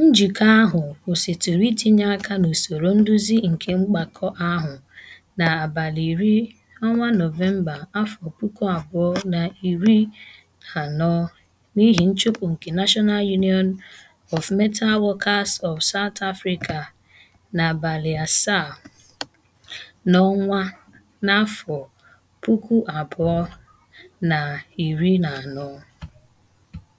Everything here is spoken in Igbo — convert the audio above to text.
Njikọ ahụ kwụsịtụrụ itinye aka n'usoro nduzi nke mgbakọ ahụ n'abalị iri 10 Nọvemba, anọ n'ihi nchụpụ nke National Union of Metal Workers of South Africa n'abalị asaa n'ọnwa n'afọ puku abụọ na na iri anọ.